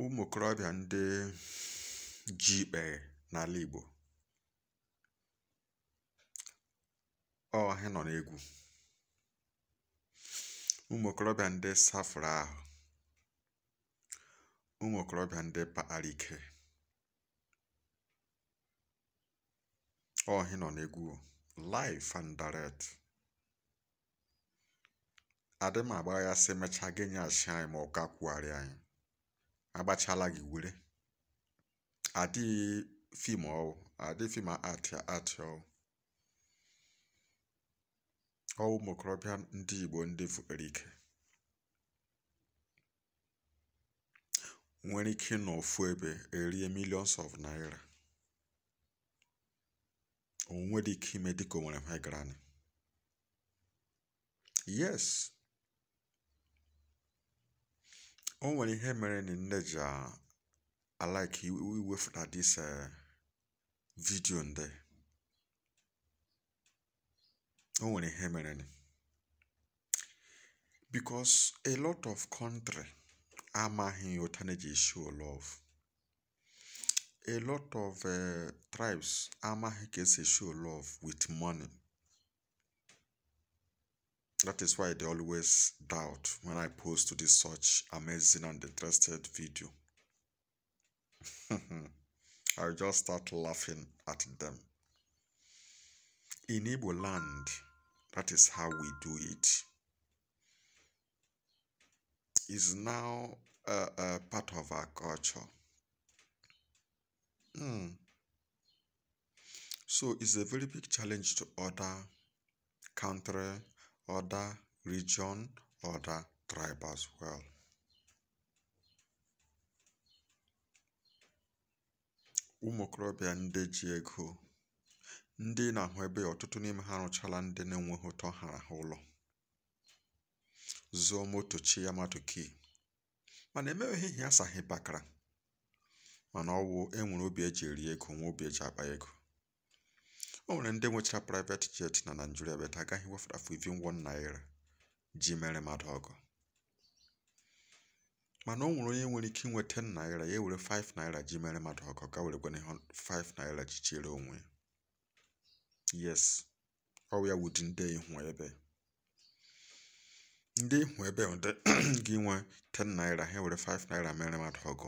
ụmụ okorobịa ndị ji ikpèghè n'ala Igbo, ọ ha nọ n'egwu ụmụ okorobịa ndị safụrụ ahụ ụmụ okorobịa ndị kpakpara ike ọ nọ n'egwu live and direct adị m ya si mechaa gị asị anyị ma ọ ga anyị agbachala gị were adịghị fim ọwụ adịghị fim atịa atịa ọwụ ọwụ ụmụ ndị Igbo ndị fukere ike nwere ike ịnọ ofu ebe erie millions of naira onwe dị ike ime dịka o ha gara yes O nwere ihe mere na nne ji alaiki iwefuta dis um vidio nde. O nwere ihe mere ni. Because a lot of country amaghị otu na eji show love. A lot of uh, tribes amaghị ka esi show love with money. That is why they always doubt when I post to this such amazing and interested video. I just start laughing at them. In Igbo land, that is how we do it. It's now a, a part of our culture. Mm. So it's a very big challenge to other country other region, ọda tribe as well. ụmụ okorobịa ndị ji ego ndị na-ahụ ebe ọtụtụ n'ime ha rụchala ndị na-enweghị ụtọ hara ha ụlọ zụọ moto chi ya Kii. mana emeghị ihe asaghị bakara mana ọwụ enwere obi eji eri ego nwa obi eji akpa ego o nwere ndị nwechara private jet na Naịjirịa beta agaghị wefere afọ iri won naira ji mere mmadụ ọgụ mana o nwere onye nwere ike inwe 10 naira ya ewere 5 naira ji mere mmadụ ọgụ ga were gwana 5 naira ji chere onwe yes ọ ya wudi ndị ihu ebe ndị ihu ebe gị nwe 10 naira ha were 5 naira mere mmadụ ọgụ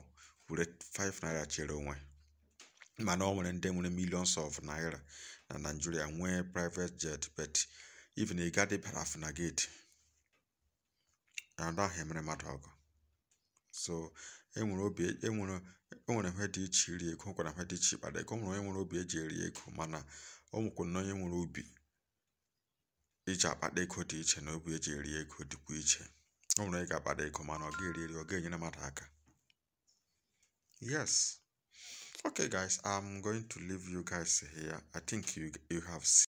were 5 naira chere onwe mana ọ nwere ndị nwere millions of naira na Nigeria nwee private jet bet even ị gadị parafina gate anada ahụ emere mmadụ ọgụ so enwere obi enwere enwere ihe dị iche iri ego nwekwara ihe dị iche ịkpara ego nwere onye nwere obi eji eri ego mana ọ na onye nwere obi iji akpata ego dị iche na obi eji eri ego dịkwa iche o nwere ị ga-akpata ego mana ọ ga-eri eri ọ ga-enyere mmadụ aka yes okay guys i'm going to leave you guys here i think you you have seen